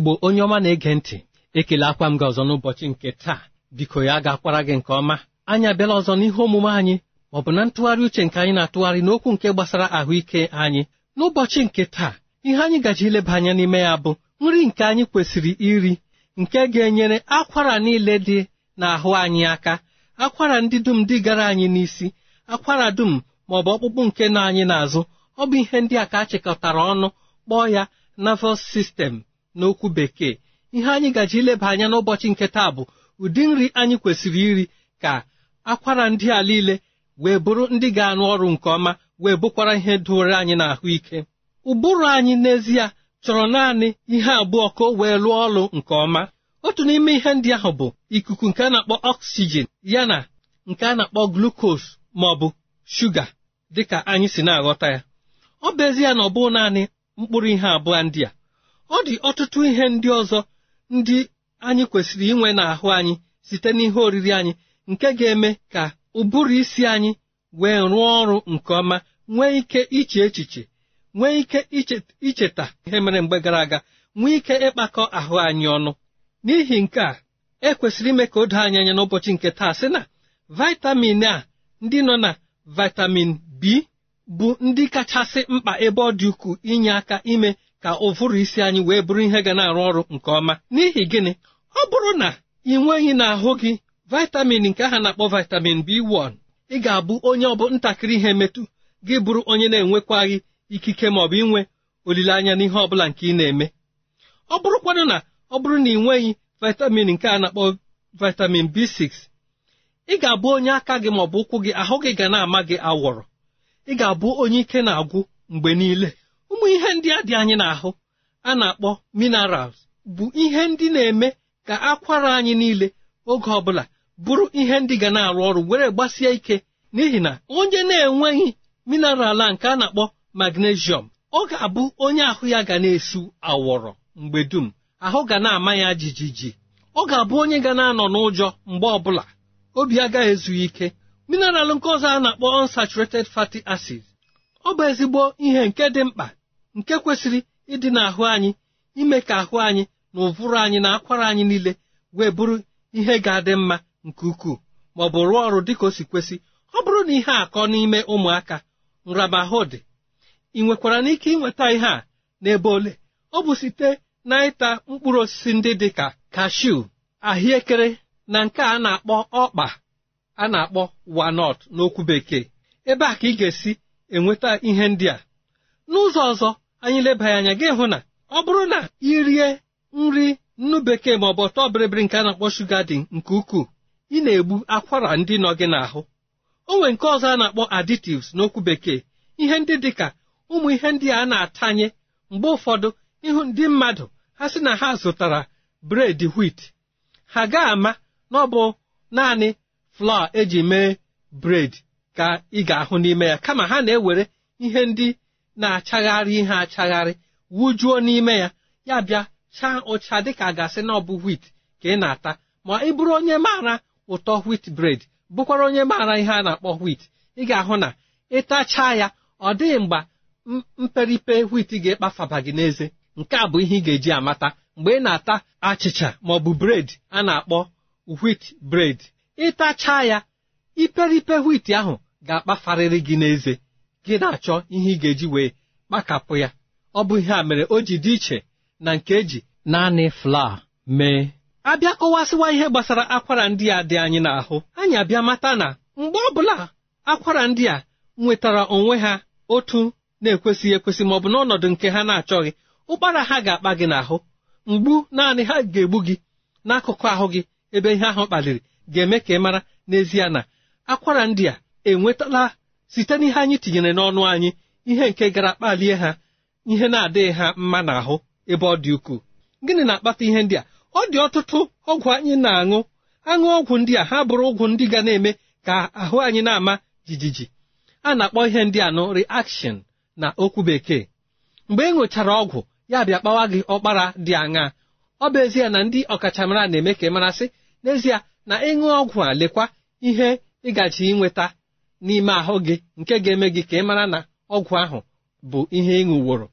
igbo onye ọma na-ege ntị ekele akwa m gị ọzọ n'ụbọchị nke taa biko ya ga-akwara gị nke ọma anyị abịala ọzọ n'ihe omume anyị ọ bụ na ntụgharị uche nke anyị na-atụgharị n'okwu nke gbasara ahụike anyị n'ụbọchị nke taa ihe anyị gaji ileba anya n'ime ya bụ nri nke anyị kwesịrị iri nke ga-enyere akwara niile dị n'ahụ anyị aka akwara ndị dum dị gara anyị n'isi akwara dum ma ọ bụ ọkpụkpụ nke nọ anyị n'azụ ọ bụ ihe ndị a ka a chịkọtara ọnụ kpọọ ya nervous system n'okwu bekee ihe anyị gaji ileba anya n'ụbọchị nke taa bụ ụdị nri anyị kwesịrị iri ka akwara ndị a niile wee bụrụ ndị ga-arụ ọrụ nke ọma wee bụkwara ihe doro anyị ike. ụbụrụ anyị n'ezie chọrọ naanị ihe abụọ ka o wee lụọ ọrụ nke ọma otu n'ime ihe ndị ahụ bụ ikuku nke a na-akpọ oxygen na nke a na-akpọ glukos maọbụ bụ shuga dịka anyị si na-aghọta ya ọ bụ ezie na ọ bụ naanị mkpụrụ ihe abụọ ndị a ọ dị ọtụtụ ihe ndị ọzọ ndị anyị kwesịrị inwe n'ahụ anyị site n'ihe oriri anyị nke ga-eme ka ụbụrụ isi anyị wee rụọ ọrụ nke ọma nwee ike iche echiche nwee ike icheta ihe mere mgbe gara aga nwee ike ịkpakọ ahụ anyị ọnụ n'ihi nke a ekwesịrị ime ka o doo anyị anya n'ụbọchị nke taa sị na vitamin a ndị nọ na vitamin B bụ ndị kachasị mkpa ebe ọ dị ukwuu inye aka ime ka ụfụrụ isi anyị wee bụrụ ihe ga na-arụ ọrụ nke ọma n'ihi gịnị ọ bụrụ na ị nweghị n'ahụ gị vitamin nke aha na-akpọ vitamin B1 ị ga-abụ onye ọ bụ ntakịrị ihe metu gị bụrụ onye na-enwekwaghị ikike ma ọ bụ inwe olileanya n'ihe ọ bụla nke ị na-eme ọ bụrụkwanụ na ọ bụrụ na ị nweghị vitamin nke a na-akpọ vitamin B6 ị ga-abụ onye aka gị ma bụ ụkwụ gị ahụ gị ga na-ama gị awọrọ ị ga-abụ onye ike na-agwụ mgbe niile ụmụ ihe ndị a dị anyị n'ahụ a na-akpọ minerals bụ ihe ndị na-eme ka akwara anyị niile oge ọbụla bụrụ ihe ndị ga na-arụ ọrụ were gbasie ike n'ihi na onye na-enweghị mineral a nke a na-akpọ magnesium ọ ga-abụ onye ahụ ya ga na-esu awọrọ mgbe dum ahụ ga na-ama ya jijiji ọ ga-abụ onye ga na-anọ n'ụjọ mgbe ọbụla obi agaghị ezu ike mineral nke ọzọ a na-akpọ unsaturated fatty acids ọ bụ ezigbo ihe nke dị mkpa nke kwesịrị ịdị n'ahụ anyị ime ka ahụ anyị na ụvụrụ anyị na akwara anyị niile wee bụrụ ihe ga-adị mma nke ukwuu ma ọ bụ rụọ ọrụ dịka o si kwesị ọ bụrụ na ihe akọ n'ime ụmụaka nramahụ dị ị nwekwara n'ike ịnweta ihe a n'ebe ole ọ bụ site na ịta mkpụrụ osisi ndị dị ka kashu ahịekere na nke a na-akpọ ọkpa a na-akpọ wanọt n'okwu bekee ebe a ka ị ga-esi enweta ihe ndị a n'ụzọ ọzọ anyị lebaghị anya gị hụ na ọ bụrụ na ị rie nri nnu bekee ma ọ bụ ọtọ bịrịbịrị nke a na-akpọ shuga dị nke ukwuu ị na-egbu akwara ndị nọ gị n'ahụ o nwere nke ọzọ a na-akpọ additives n'okwu bekee ihe ndị dị ka ụmụ ihe ndị a na-atanye mgbe ụfọdụ ịhụ ndị mmadụ ha sị na ha zụtara bred wit ha ga-ama na ọ bụ naanị flọa eji mee bred ka ị ga-ahụ n'ime ya kama ha na-ewere ihe ndị na-achagharị ihe achagharị wujuo n'ime ya ya bịa chaa ụcha dịka gasị na ọ bụ wit ka ị na-ata ma ị bụrụ onye maara ụtọ wit bred bụkwara onye maara ihe a na-akpọ wit ị ga-ahụ na ịtachaa ya ọ dịghị mgbe mperipe wit ga-ekpafaba gị n'eze nke a bụ ihe ị ga-eji amata mgbe ị na-ata achịcha ma ọ bụ bred a na-akpọ wit bred ịtachaa ya iperipe wit ahụ ga-akpafarịrị gị n'eze gị na-achọ ihe ị ga-eji wee kpakapụ ya ọ bụ ihe a mere o ji dị iche na nke eji naanị flaa mee abịa kọwasịwa ihe gbasara akwara ndị a dị anyị n'ahụ anyị abịa mata na mgbe ọ bụla akwara ndị a nwetara onwe ha otu na-ekwesịghị ekwesị ma ọ bụ n'ọnọdụ nke ha na-achọghị ụkpara ha ga-akpa gị n'ahụ mgbu naanị ha ga-egbu gị n'akụkụ ahụ gị ebe ihe ahụ kpaliri ga-eme ka ị mara n'ezie na akwara ndị a enwetala site n'ihe anyị tinyere n'ọnụ anyị ihe nke gara kpalie ha ihe na-adịghị ha mma n'ahụ ebe ọ dị ukwuu gịnị na-akpata ihe ndị a ọ dị ọtụtụ ọgwụ anyị na-aṅụ aṅụ ọgwụ ndị a ha bụrụ ụgwụ ndị ga na-eme ka ahụ anyị na-ama jijiji a na-akpọ ihe ndị a nụ reaction na okwu bekee mgbe ị e ṅụchara ọgwụ ya bịa kpawa gị ọkpara dị aṅa ọ bụ ezie na ndị ọkachamara na-eme ka ị marasị n'ezie na ịṅụ ọgwụ a lekwa ihe ịgaji ịnweta n'ime ahụ gị nke ga-eme gị ka ị mara na ọgwụ ahụ bụ ihe ị ṅụworo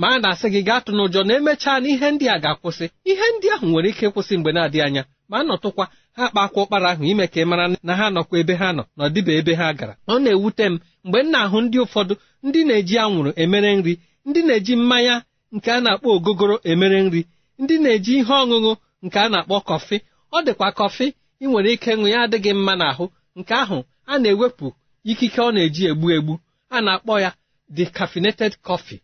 ma a na-asị gị gaa tụ n'ụjọ na emechaa na ihe ndị a ga-akwụsị ihe ndị ahụ nwere ike ịkwụsị mgbe na-adịghị anya ma a nọtụkwa ha kpakwa ụkpara ahụ ime ka ị mara na ha nọkwa ebe ha nọ na ọdịba ebe ha gara ọ na-ewute m mgbe m na-ahụ ndị ụfọdụ ndị na-eji anwụrụ emere nri ndị na-eji mmanya nke a na-akpọ ogogoro emere nri ndị na-eji ihe ọṅụṅụ nke a na-akpọ kọfị ọ dịkwa kọfị ị nwere ike ịṅụ ya adịghị mma n'ahụ nke ahụ a na-ewepụ ikike ọ na-eji egbu egbu a na-akpọ ya cafeneted coffee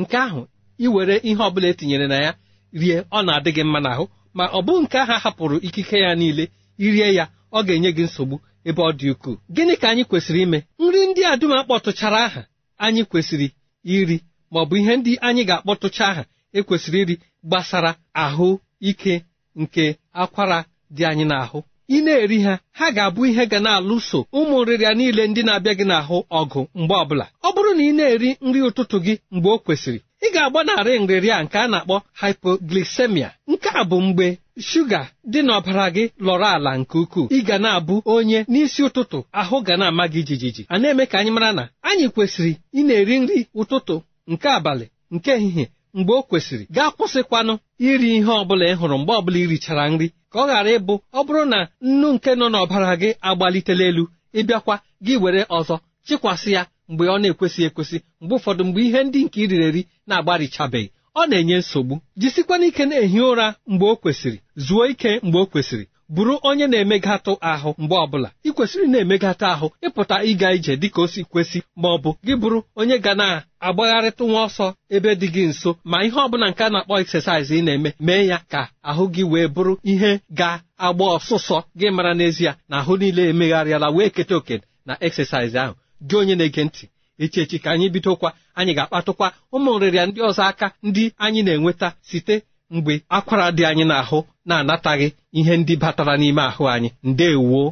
nke ahụ iwere ihe ọbụla etinyere na ya rie ọ na-adị gị mma n'ahụ ma ọ bụ nke ahụ hapụrụ ikike ya niile irie ya ọ ga-enye gị nsogbu ebe ọ dị ukwuu gịnị ka anyị kwesịrị ime nri ndị a dum akpọtụchara aha anyị kwesịrị iri ma ọ bụ ihe ndị anyị ga-akpọtụcha aha ekwesịrị iri gbasara ahụ ike nke akwara dị anyị n'ahụ ị na-eri ha ha ga-abụ ihe ga na-alụso ụmụ nrịrịa niile ndị na-abịa gị n'ahụ ọgụ mgbe ọbụla ọ bụrụ na ị na-eri nri ụtụtụ gị mgbe o kwesịrị ị ga-agbanarị nrịrịa nke a na-akpọ hypoglycemia nke a bụ mgbe shuga dị n'ọbara gị lọrọ ala nke ukwuu ị ga na-abụ onye n'isi ụtụtụ ahụ ga na-ama gị jijiji a na-eme ka anyị mara na anyị kwesịrị ị na-eri nri ụtụtụ nke abalị nke ehihie mgbe o kwesịrị gaa kwụsịkwanụ iri ihe ọbụla ị hụrụ mgbe ọbụla irichara nri ka ọ ghara ịbụ ọ bụrụ na nnu nke nọ n'ọbara gị agbalitela elu ịbịakwa gị were ọzọ chịkwasị ya mgbe ọ na-ekwesị ekwesị mgbe ụfọdụ mgbe ihe ndị nke iriri eri na-agbarichabeghị ọ na-enye nsogbu jisikwana ike na-ehi ụra mgbe o kwesịrị zuo ike mgbe o kwesịrị bụrụ onye na-emegatụ ahụ mgbe ọbụla ị kwesịrị na-emegatụ ahụ ịpụta ịga ije dịka o si kwesị ma ọ bụ gị bụrụ onye ga na agbagharịtụ nwa ọsọ ebe dị gị nso ma ihe ọbụla nke a na-akpọ exercise ị na-eme mee ya ka ahụ gị wee bụrụ ihe ga-agba ọsụsọ gị mara n'ezie na ahụ niile emegharịala wee keta oke na exercise ahụ gị onye na-ege ntị echi echi ka anyị bidokwa anyị ga-akpatụkwa ụmụ nrịrịa ndị ọzọ aka ndị anyị na-enweta site mgbe akwara dị anyị n'ahụ na-anataghị ihe ndị batara n'ime ahụ anyị ndewoo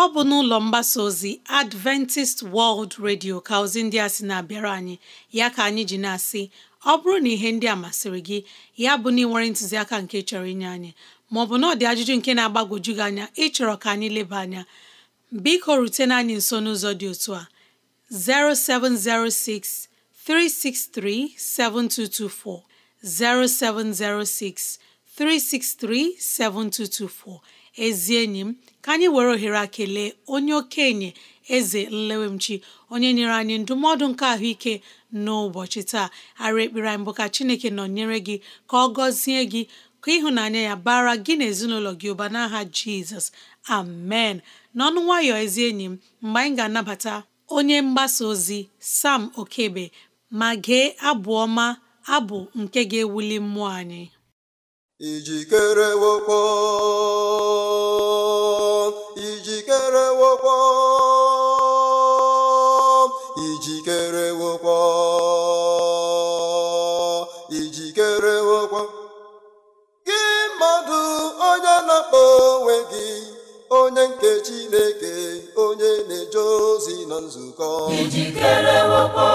ọ bụ n'ụlọ mgbasa ozi Adventist World Radio ka ozi ndị a sị na-abịara anyị ya ka anyị ji na-asị ọ bụrụ na ihe ndị a masịrị gị ya bụ na ị nwere ntụziaka nke chọrọ inye anyị maọbụ na ọ dị ajụjụ nke na-agbagwoju gị anya ịchọrọ ka anyị leba anya biko rutena anyị nso n'ụzọ dị otu a 0706 363 7224 0706 363 7224 ezi enyi m ka anyị were ohere a kelee onye okenye eze nlewemchi onye nyere anyị ndụmọdụ nke ahụike n'ụbọchị taa ara ekpere anyị bụ ka chineke nọ nyere gị ka ọ gọzie gị ka ịhụnanya ya bara gị na ezinụlọ gị ụba n'aha jizọs amen n'ọnụ nwayọ ezi enyi m mgbe anyị ga-anabata onye mgbasa ozi sam okebe ma gee abụ ọma abụ nke ga-ewuli mmụọ anyị ijikere wokwo ijikere wokwo ijikere wokwo ijikere wokwo gị mmadụ onye na-akpọ onwe gị onye nke Chineke onye na-eje ozi na nzukọ ijikere wepọ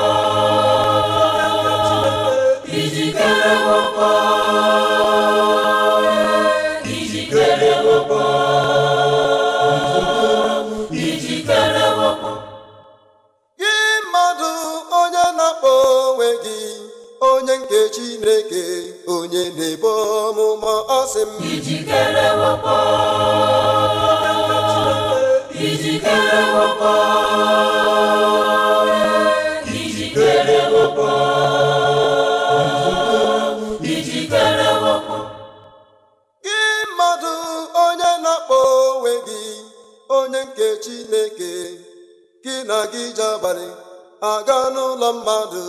ijikere wepọ ijikere wepọ ijikere wepọ gị mmadụ onye na-akpọ onwe gị onye nke Chineke onye na-ebo ọmụma ọ sị m ijikere ijikere gị mmadụ onye na-akpọ onwe gị onye nke Chineke gị na gị ji abalị aga n'ụlọ mmadụ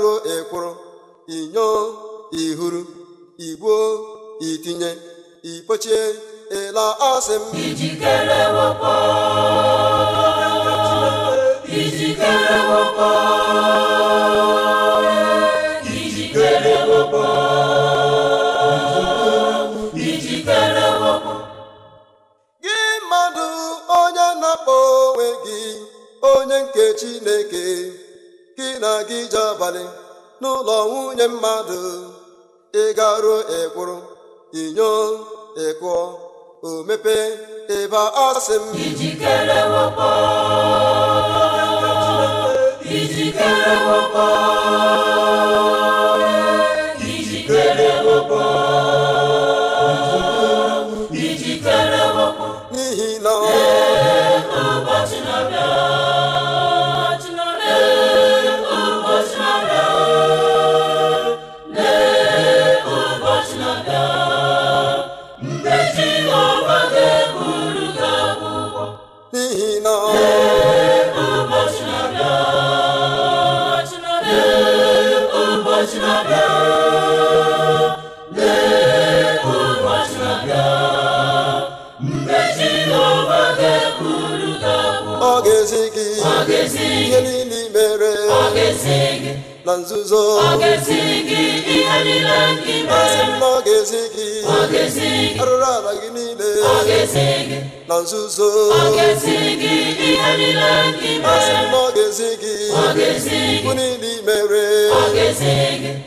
ruo ekworo inyo ihuru igbuo itinye ipochie ịla asị m ijikere ijikere gị mmadụ onye na-akpọ onwe gị onye nke Chineke gị na gị ji abalị n'ụlọ nwunye mmadụ ị garuo ekwuru inyo ịkụọ o mepee ebe ọ sị m ijikere wakpo ijikere wakpo na nzuzo na ọ ga-ezi gị arụrụ ala gị niile na nzuzo asị m na ọ ga-ezi gị bụ niile imere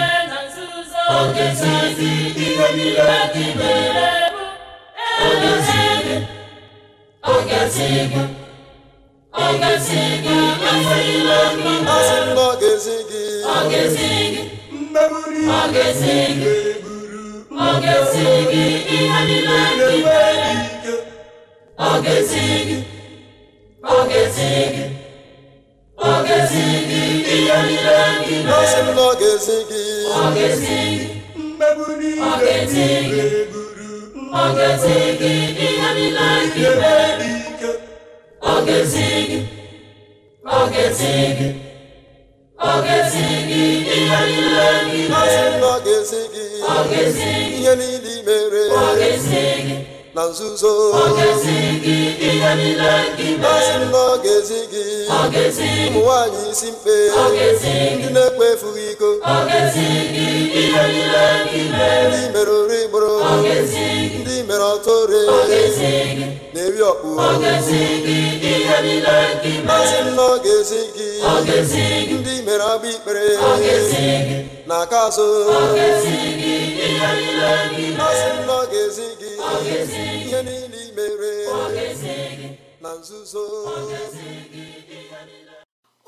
ga-esi gị ọ ga-esi gị ihe niile dị mere ọ ga-esi gị ọ ga-esi gị ọ ga-esi gị ihe niile dị ọ ga-esi gị ọ ga-esi gị ọ ga-esi gị ọ ga-esi gị ọ ga-esi gị ọ ga-esi gị ọ ga-esi gị ihe niile gị mere gị ihe niile mere ọ gị na nzuzo ọ ga-esi gị ihe niile gị ụmụ nwanyị isi mkpe ndị na ekpe efughị iko ndị mere ori gboro ndị mere ọtọ ore na-eri ọkpụ n'oge gị ndị mere agba ikpere na-aka azụ masị n'oge gị ihe niile imere na nzuzo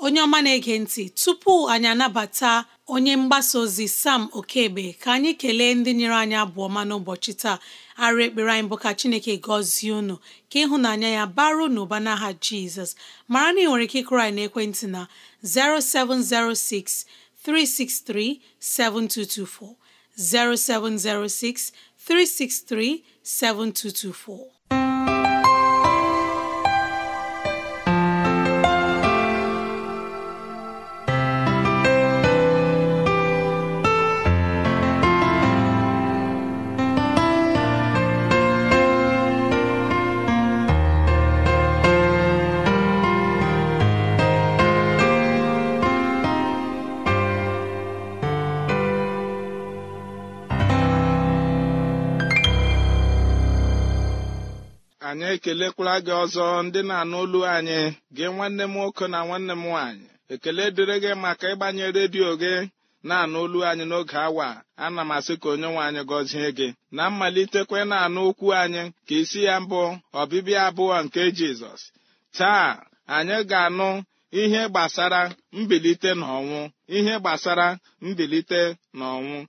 onye ọma na-ege ntị tupu anyị anabata onye mgbasa ozi sam okebe ka anyị kelee ndị nyere anyị abụọma n'ụbọchị taa arụ ekpere anyị bụ ka chineke gọzie unu ka ịhụnanya ya baru n'ụba n'aha jizọs mara na ị nwere ike ịkụrụ anyị n'ekwentị na 0706 363 7224 0706 363 7224 kelekwara gị ọzọ ndị na-anụ olu anyị gị nwanne m nwoke na nwanne m nwaanyị ekele dịrị gị maka ịgbanye redio gị na-anụ olu anyị n'oge awa ana m asị ka onye nwe anyị gọzie gị na mmalitekwe na-anụ okwu anyị ka isi ya mbụ ọbịbịa abụọ nke Jizọs taa anyị ga-anụ ihe gbasara mbilite n'ọnwụ ihe gbasara mbilite n'ọnwụ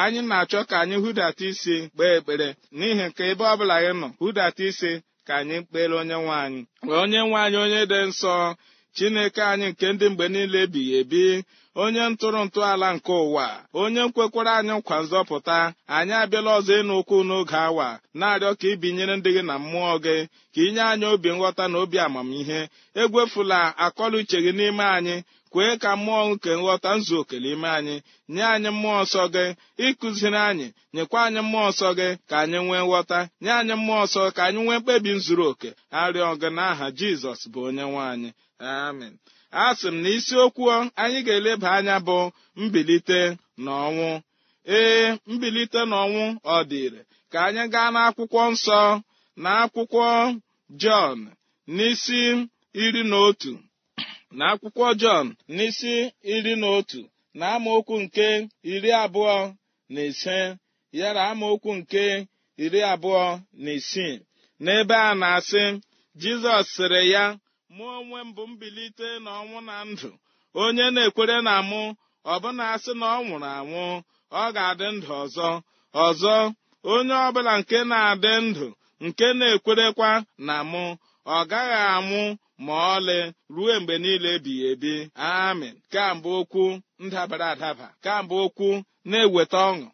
anyị na-achọ ka anyị hụdata isi kpee ekpere n'ihi nke ebe ọbụla gị nọ hụdata isi ka anyị kpere onye nwe anyị onye nwe anyị onye dị nsọ chineke anyị nke ndị mgbe niile ebighị ebi onye ntụrụ ala nke ụwa onye nkwekwara anyị nkwa nzọpụta anyị abịala ọzọ ịnụ ụkwụ n'oge awa na-arịọ ka ibinyere ndị gị na mmụọ gị ka inye anyị obi nghọta na obi amamihe egwefula akọla uche gị n'ime anyị kwee ka mmụọ nke nghọta nzu oke n'ime anyị nye anyị mmụọ nsọ gị ịkụziri anyị nyekwa anyị mmụọ nsọ gị ka anyị nwee nghọta nye anyị mmụọ nsọ ka anyị nwee mkpebi zuru oke arịọ gị n'aha jizọs bụ onye nwe anyị amen a sị m na isiokwu anyị ga-eleba anya bụ mbilite na ọnwụ ee mbilite na ọnwụ ọ dịre ka anyị gaa n'akwụkwọ nsọ na akwụkwọ jọn n'isi iri na otu na akwụkwọ Jọn n'isi iri na otu na amaokwu nke iri abụọ na ise yara amaokwu nke iri abụọ na isii n'ebe a na-asị Jizọs sịrị ya mụ onwe m bụ mbilite na ọnwụ na ndụ onye na-ekwere na mụ ọbụna asị na ọ nwụrụ anwụ ọ ga-adị ndụ ọzọ ọzọ onye ọbụla nke na-adị ndụ nke na-ekwerekwa na mụ ọ gaghị anwụ ma ọlị ruo mgbe niile ebighị ebi amịn kambụ okwu ndabara adaba kambụ okwu na-eweta ọṅụ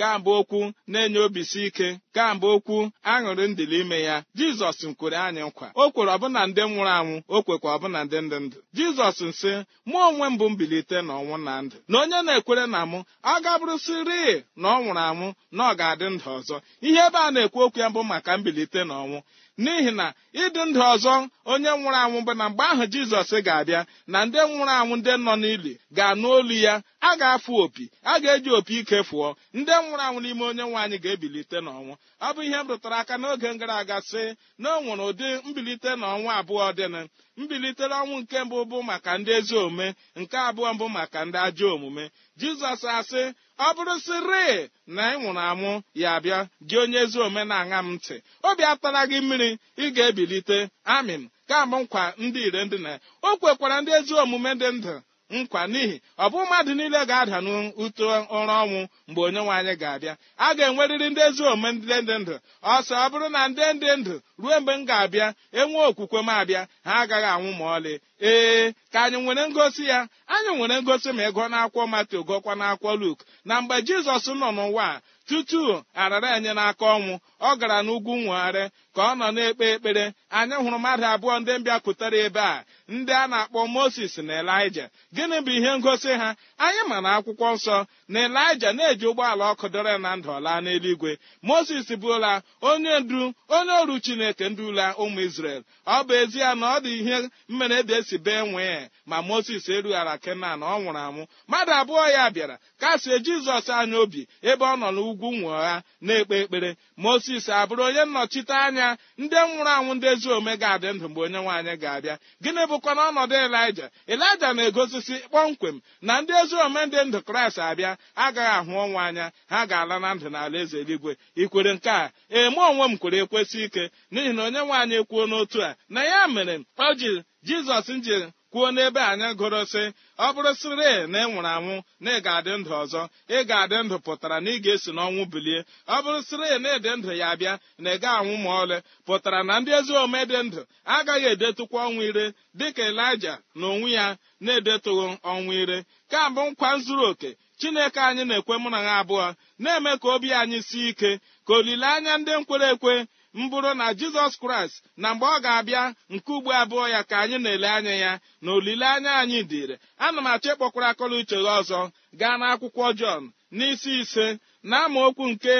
kambụ okwu na-enye obisi ike kamgbe okwu aṅụrị ndịli ime ya jizọs kwere anyị nkwa o kwere ọbụna ndị nwụrụ anwụ o kwekwa ọbụna ndị ndị ndụ jizọs nsị mụ onwe m bụ mbilite na ọnwụ na ndụ na onye na-ekwere na mụ ọ gabụrụsịrị na ọ nwụrụ anwụ na ọ ga-adị ndụ ọzọ ihe ebe a na-ekwu okwu ya bụ maka mbilite na ọnwụ n'ihi na ịdị ndụ ọzọ onye nwụrụ anwụ bụ na mgbe ahụ jizọs ga-abịa na ndị nwụrụ anwụ ndị nọ n'ili ga-anụ olu ya a ga-afụ opi a ga-eji opi ike fụọ ndị nwụrụ anwụ n'ime onye anyị ga-ebilite n'ọnwụ ọ bụ ihe m rụtara aka n'oge gara aga sị na ọ nwere ụdị mbilite na ọnwa abụọ dịnụ mbilitere ọnwụ nke mbụ bụ maka ndị ezi omume nke abụọ mbụ maka ndị ajọ omume jizọs asị ọ bụrụ sịrị na ị nwụrụ anwụ ya abịa gị onye ezi omume na-aṅa m ntị obi atara gị mmiri ị ga-ebilite amin ka mbụ nkwa ndị ire ndị na o kwekwara ndị ezi omume dị ndụ nkwa n'ihi ọ bụ mmadụ niile ga-ada n'ụtọ ụra ọnwụ mgbe onye nwe anyị ga-abịa a ga-enwerịrị ndị ezi omume ndị ndụ ọsọ ọ bụrụ na ndị dị ndụ ruo mgbe m ga-abịa enwe okwukwe m abịa ha agaghị anwụ ma ọlị ee ka anyị nwere ngosi ya anyị nwere ngosi ma ịgụọ n'akwụkwọ Mateo gụọkwa n'akwụkwọ Luk na mgbe Jizọs nọ n'ụwa a tutu arara enye n'aka ọnwụ ọ gara n'ugwu nwegharị ka ọ nọ na-ekpe ekpere anyị hụrụ mmadụ abụọ ndị mbịapụtara ebe a ndị a na-akpọ moses na elija gịnị bụ ihe ngosi ha anyị ma na akwụkwọ nsọ na elija na-eji ụgbọala ọkụ dọrọ na ndụ laa n'eluigwe moses bụla onye ndu onye ọrụ chineke ndula ụmụ isrel ọ bụ ezie na ọ dị ihe mmere dị e esi bee nwee ma moses erughara kenan ọ nwụrụ anwụ mmadụ abụọ ya bịara kasie jizọs anya obi ebe ọ nọ n'ugwu nwụọ ha na-ekpe ekpere moses abụrụ onye nnọchite anya anya ndị nwụrụ anwụ ndị ezi omume ga-adị ndụ mgbe onye nwaanyị ga-abịa gịnị bụkwa n'ọnọdụ elija elija na-egosisi kpọmkwem na ndị ezi omume ndị ndụ kraịst abịa agaghị ahụ ọnwa anya ha ga-ala na ndụ n'ala eze eluigwe ikwere nke a eme onwe m kwere ekwesị ike n'ihi na onye nwaanyị kwuo n'otu a na ya mere ọ ji jizọs nji kwuo n'ebe anyị gụrụ sị ọ bụrụ sịrị na ị nwụrụ anwụ na ị ga-adị ndụ ọzọ ị ga-adị ndụ pụtara na ị ga-esi n'ọnwụ bilie ọ bụrụ sịrị na ịdị ndụ ya bịa na ị ga anwụ ma ọlị pụtara na ndị ezi ome dị ndụ agaghị edetụkwa ọnwụ ire dịka elija na onwe ya na-edetụghị ọnwụ ire kambụ nkwa zuru oke chineke anyị na-ekwe mụ na ha abụọ na-eme ka obi anyị sie ike ka olileanya ndị nkwere ekwe mbụrụ na jizọs kraịst na mgbe ọ ga-abịa nke ugbo abụọ ya ka anyị na-ele anya ya na olileanya anyị dịrị ana m achọ ịkpọkwara akọla uche gị ọzọ gaa n'akwụkwọ jọn n'isi ise na okwu nke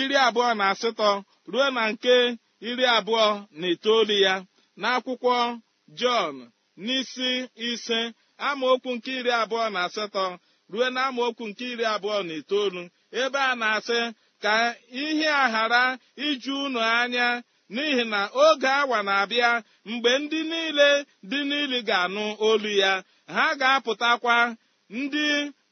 iri abụọ na asatọ ruo na nke iri abụọ na itoolu ya na akwụkwọ jọn n'isi ise okwu nke iri abụọ na asatọ ruo na okwu nke iri abụọ na itoolu ebe a na-asị ka ihe a ghara iju unu anya n'ihi na oge awa na-abịa mgbe ndị niile dị n'ili ga-anụ olu ya ha ga-apụtakwa ndị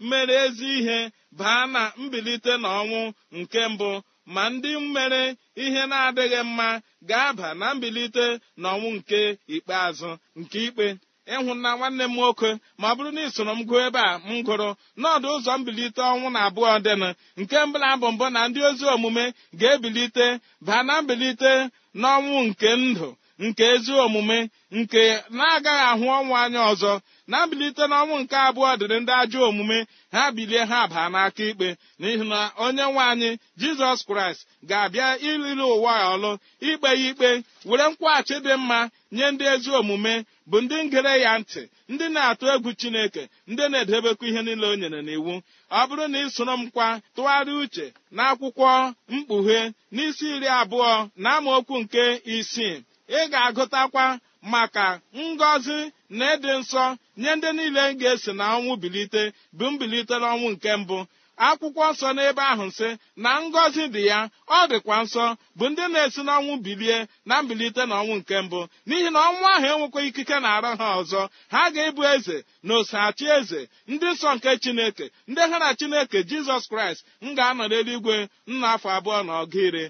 mere ezi ihe baa na mbilite n'ọnwụ nke mbụ ma ndị mere ihe na-adịghị mma ga-aba na mbilite n'ọnwụ nke ikpeazụ nke ikpe ịhụna nwanne m nwoke ma ọ bụrụ na ị soro m gụọ ebe a m gụrụ n'ọdụ ụzọ mbilite ọnwụ na abụọ dịnụ nke mbụla bụ mbụ na ndị ozi omume ga-ebilite baa na mbilite n'ọnwụ nke ndụ nke ezi omume nke na-agaghị ahụ ọnwụ anya ọzọ na-abilite n'ọnwụ nke abụọ dịrị ndị ajọ omume ha bilie ha baa n'aka ikpe n'ihi na onye nwe anyị jizọs kraịst ga-abịa iliri ụwa ọlụ ikpe ya ikpe were nkwaghachi dị mma nye ndị ezi omume bụ ndị ngere ya ntị ndị na-atụ egwu chineke ndị na-edebekwa ihe niile o nyere n'iwu ọ bụrụ na ị soro m kwa tụgharịa uche na akwụkwọ mkpughe n'isi iri abụọ na amaokwu nke isii ị ga-agụtakwa maka ngọzi na ịdị nsọ nye ndị niile ga-esi na ọnwụ bilite bụ mbilite n'ọnwụ nke mbụ akwụkwọ nsọ n'ebe ahụ nsị na ngọzi dị ya ọ dịkwa nsọ bụ ndị na-esi n'ọnwụ bilie na mbilite na ọnwụ nke mbụ n'ihi na ọnwụ ahụ enwekwa ikike na-arụ ha ọzọ ha ga-ebu eze na osachi eze ndị nsọ nke chineke ndị ha na chineke jizọs kraịst m ga-anọ n'eluigwe nna afọ abụọ na ọgụ iri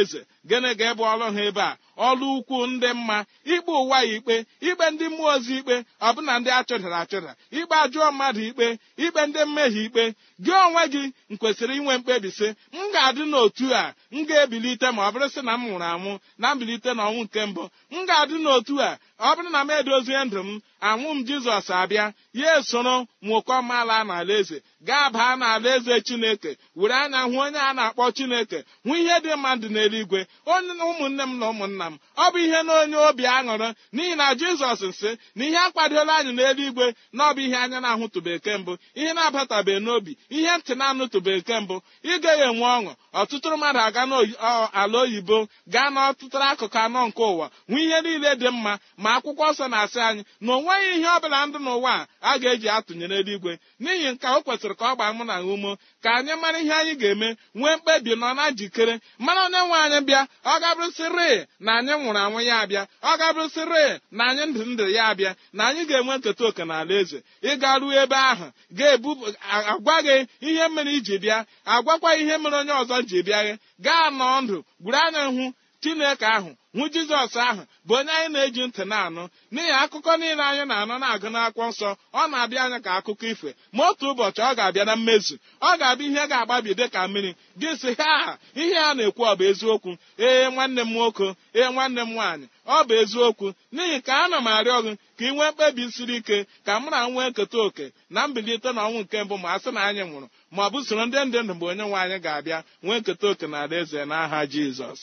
eze gịnị ga-ebu ọrụ ha ebe a ọlụ ukwu ndị mma ikpe ụwa ya ikpe ikpe ndị mmụọ ozi ikpe ọbụna ndị achụdara achụda ikpe ajụọ mmadụ ikpe ikpe ndị mmehie ikpe gị onwe gị kwesịrị inwe mkpebi sị m ga-adị n'otu a m ga-ebilite ma ọ bụrụ sị na m nwụrụ anwụ na mbilite n'ọnwụ nke mbụ m ga-adị n'otu a ọ bụrụ na m edozie ndụ m anwụ m jizọs abịa ya esoro nwụkọ mala n'ala eze gaa baa n'ala eze chineke were anya hụ onye a na-akpọ chineke hụ ihe dị mmadụ n'eluigwe onye ụmụnne m na ụmụnna m ọ bụ ihe na onye obi aṅụrụ n'ihi na jizọs nsị na ihe akwadola anyị n'eluigwe na ọ bụ ihe anya na-ahụtụbeke mbụ ihe na-abatabeghị n'obi ihe ntị na-anụtụbeke mbụ ịgaghị enwe ọṅụ ọtụtụ mmadụ aga n'ala oyibo gaa n'ọtụtụ akụkụ anọ nke ụwa hụ ihe niile dị mma ma akwụkwọ nsọ na-asị anyị na onwe nweghị ihe ọ bụla ndụ n'ụwa a ga-eji atụnyere eluigwe n'ihi nke o kwesịrị ka ọ gbaa mụ na umo ka anyị mara ihe anyị ga-eme nwee mkpebi nọ na njikere mara onye nwe anyị bịa ọ gabụrụsịrị na anyị nwụrụ anwụ ya abịa ọ gabụrụsịrị na anyị ndụ ndụ ya abịa na anyị ga-enwe nketa oke na ala eze ịga ruo ebe ahụ ga-ebu agwa gị ihe mere iji bịa agwakwa ihe mere onye ọzọ ji bịa gị gaa nọọ ndụ gburu anya hụ chineke ahụ nwu jizọs ahụ bụ onye anyị na-eji ntị na-anụ n'ihi akụkọ niile anyị na-anụ na-agụ n'akwụkwọ nsọ ọ na-abịa anya ka akụkọ ifo ma otu ụbọchị ọ ga-abịa na mmezu ọ ga-abịa ihe ga-agbabi dị ka mmiri gị sị ha ihe a na-ekwu ọ bụ eziokwu ee nwanne m nwoke ee nwanne m nwaanyị ọ bụ eziokwu n'ihi ka a m arịọ gị ka ị nwee mkpebi siri ike ka m na nwee nketa oke na mbilite na ọnwụ nke mbụ ma a sị na anyị nwụrụ ma ọ bụ soro ndị ndị ndụ mgbe onye nwe anyị ga-abịa nwee nketa oke na alaeze n'aha jizọs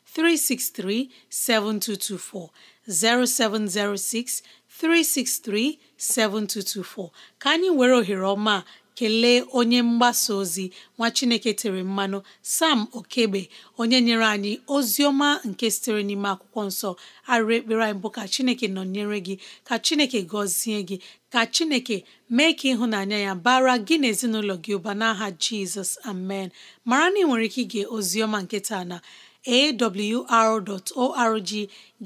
363 7224 0706 363 7224 ka anyị were ohere ọma kelee onye mgbasa ozi nwa Chineke tere mmanụ Sam Okegbe onye nyere anyị ozi ọma nke sitere n'ime akwụkwọ nsọ arịrị ekpere anyị bụ ka Chineke nọnyere gị ka Chineke gọzie gị ka Chineke mee ka ịhụnanya ya bara gị na ezinụlọ gị ụba n'aha Jizọs amen mara na ị nwere ike ige ozi ọma na awr.org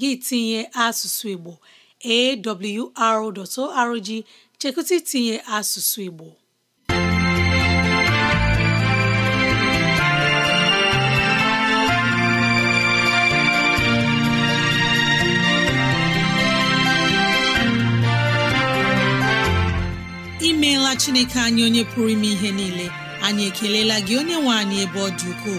gị tinye asụsụ Igbo awr.org chekụta itinye asụsụ Igbo imeela Chineke anyị onye pụrụ ime ihe niile anyị ekelela gị onye nwe anyị ebe ọ dị ukwuu